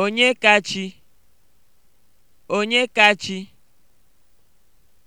Onye kachi? onye kachi?